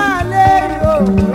máa lérò.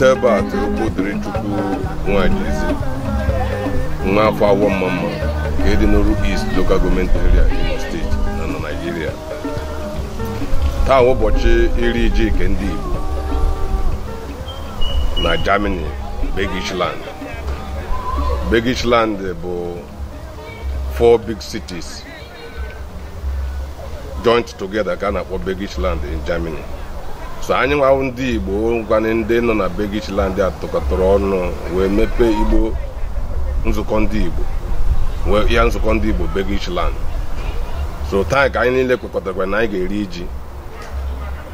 site ebe a tụrụkwu dịrị chukwu nwajizi nwa afọ awọ mma mma nke dị n'oru East Local Government Area Imo steeti na na naijiria taa ụbọchị iri iji nke ndị Igbo na Germany Bergisland Bergisland bụ four big cities joined together ka a na-akpọ in Germany so anyị nwawụ ndị igbo ngwanị ndị nọ na begichland atụkọtara ọnụ wee mepee igbo nzukọ ndị igbo ya nzukọ ndị igbo begichland so taa ka anyị niile kwekọtara na anyị ga-eri ji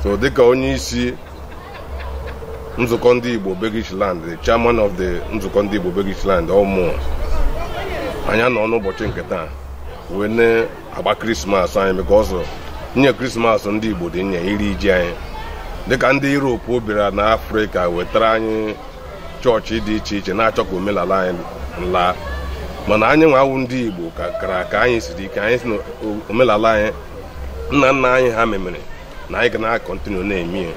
so dịka onye isi nzukọ ndị igbo begichland the chairman of the nzukọ ndị igbo begichland ọmụ anyị anọ n'ụbọchị nke taa wee na-agba krismas anyị because nye krismas ndị igbo dị nye iri ji anyị dịka ndị Europe bịara na Afrịka wetara anyị chọọchị dị iche iche na-achọ ka omenala anyị laa mana anyị nwa ndị Igbo kara ka anyị siri ike anyị si na omenala anyị nna nna anyị ha memere na anyị ga na-akọntinu na-eme ya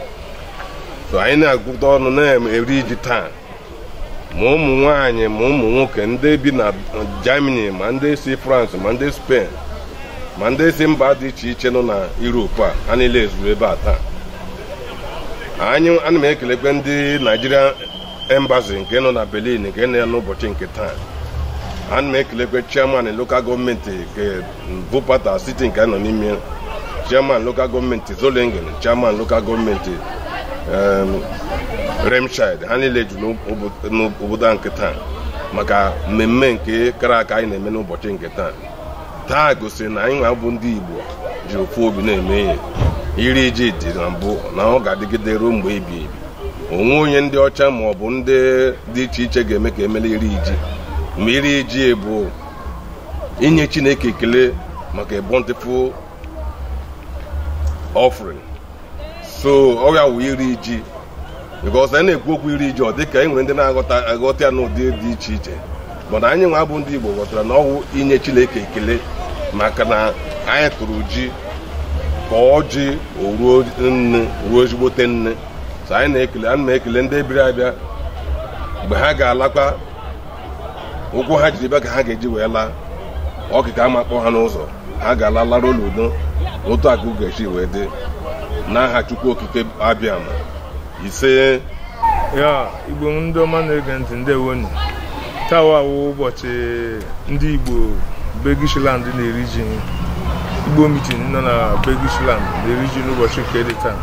so anyị na-agụta ọnụ na-eri ji taa ma ụmụ nwanyị ma ụmụ nwoke ndị bi na Germany ma ndị si France ma ndị Spain ma ndị si mba dị iche iche nọ na Europe a ha niile ezuru ebe a taa anyị ana m ekelekwe ndị naijiria embasi nke nọ na berlin nke nọ ya n'ụbọchị nke taa ana m ekelekwe chairman lokal gọọmenti nke vupata nke nọ n'ime chairman lokal gọọmenti zolingen chairman lokal gọọmenti remshid ha niile jụ n'obodo a nke taa maka mmemme nke kara aka anyị na-eme n'ụbọchị nke taa taa gosiri na anyị nwa bụ ndị igbo ji ofu obi na-eme ihe iri ji dị na mbụ na ọ ga-adịgide ruo mgbe ebi ebi onwe onye ndị ọcha ma ọ bụ ndị dị iche iche ga-eme ka emele iri ji ma iri ji e bụ inye chineke ekele maka a bountiful so ọrịa ya wụ iri ji because anyị na-ekwu okwu iri ji ọ dị ka e nwere ndị na-aghọta aghọta ya n'ụdị dị iche iche mana anyị nwa bụ ndị Igbo ghọtara na ọwụ inye chineke ekele maka na anyị tụrụ ji ka ji oruo nne ruo ezigbote nne so anyị na-ekele anyị na-ekele ndị ebiri abịa mgbe ha ga-alakwa ụkwụ ha jiri bịa ka ha ga-eji wee laa ọkịka ama kpọ ha n'ụzọ ha ga-ala lara n'udo otu akụ ga-esi wee dị n'aha chukwu okike abịa ise ya igbo ndị ọma na-ege ntị ndewonu awụ ụbọchị ndị igbo begishiland na-eri ji Igbo meeting nọ na Begisland na-eriji n'ụbọchị nke dị taa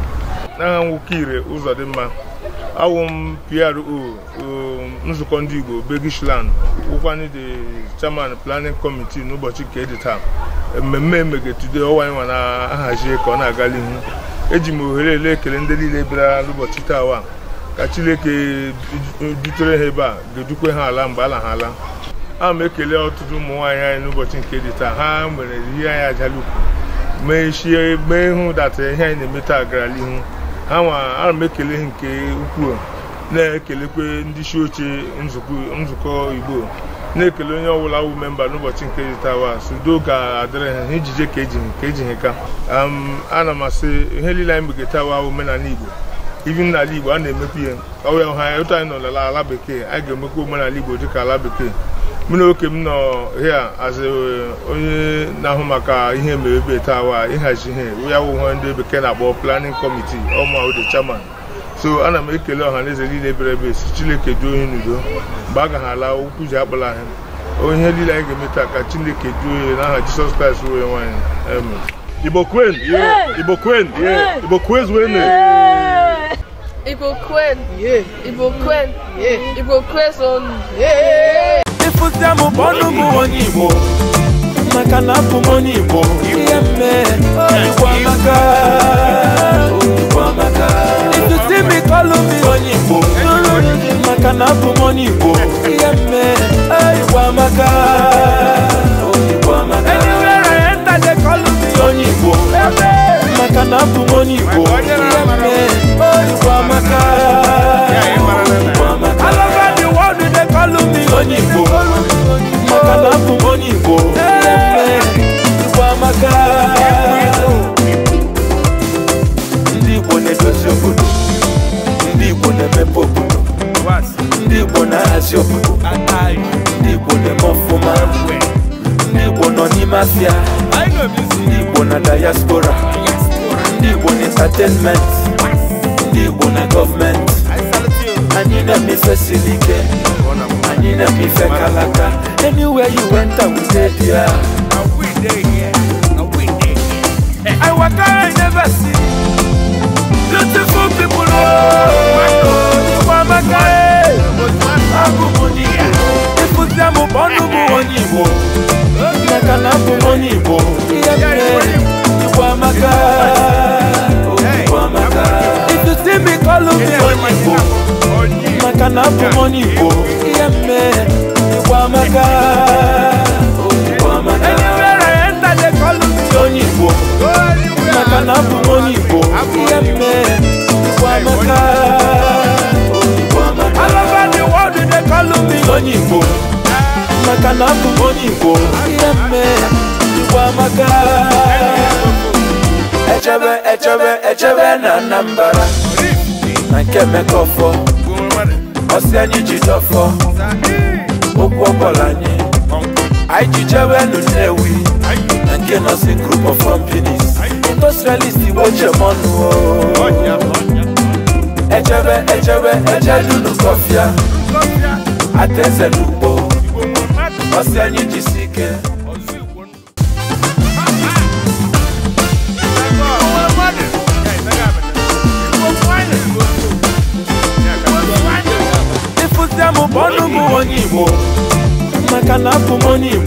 n'agha nwoke ire ụzọ dị mma awụ m PRO nzukọ ndị Igbo Begisland wụkwanye the chairman planning committee n'ụbọchị nke dị taa mmemme emegetude ọwa ịnwa na-ahazi ka ọ na-aga n'ihu eji m ohere ele ekele ndị niile bịara n'ụbọchị taa ka Chineke dutere ha ebe a ga-edukwe ha ala mgbe ala ha ala a m ekele ọtụtụ ụmụ nwaanyị anyị n'ụbọchị nke dị taa ha mere ihe anyị ajalukwu mee chie mee ihu data ihe anyị na emeta taa gara n'ihu ha nwa ana m ekele nke ukwuu na-ekelekwe ndị isi oche nzukọ igbo na-ekele onye ọbụla wụ memba n'ụbọchị nke dị taa wa sudo ga-adịrị ha ijije ka eji ha ka ana m asị ihe niile anyị mege wa omenala igbo ibi n'ala igbo a na-emekwu ihe ọwụ ya ha ụtọ anyị nọ ala bekee anyị ga-emekwa omenala igbo dịka ala bekee mụ na oke m nọ hia as uh, onye na-ahụ maka ihe mere ebe tawa ịhazi ihe ya wụhe ndị bekee na-akpọ planning committee ọma the chairman so ana m ekele ọha na eze niile bịara ebe si chineke duo onye n'udo mgbe a gaghara okwu ji akpala anyị onye niile anyị ga-eme taa ka chineke duo onye n'aha jisọs kraịst wee nwaanyị igbo kwen igbo kwen igbo kwez wene Igbo kwen! Igbo kwen! Igbo kwez onu! apụsịa m ọnụ m onye Igbo maka na abụ m onye Igbo ihe mee Igbo amaka ịtụtụ imi kọlụ m onye Igbo maka na abụ anywhere I enter they call me onye Igbo maka na abụ moniko makanapu moniko kwamaka ndị igbo na ndị ndị ndị ndị diaspora ndị entertainment ndị kalaka. Anywhere you went, I would stay there. I here. I here. I walk I never see beautiful people. Oh, you them my on If you see me, call me money, bo. Like money, bo. yẹmẹ ìwà Anywhere I enter they call me Oyinbo. Maka na abụ m Oyinbo. Yẹmẹ ìwà mẹ́ka. All over the world they call me Oyinbo. Maka na abụ m Oyinbo. Yẹmẹ ìwà mẹ́ka. Echebe echebe echebe na Anambra. Na nke Mekọfọ ọsẹ ni jidọfọ okwu ọbọla nye anyị jijewe nu nnewi na nke nọsi group of companies industrialist igbo jemọnụ ejebe ejebe ejedunu kọfịa ateze ọsẹ anyị jisi ike kaka money.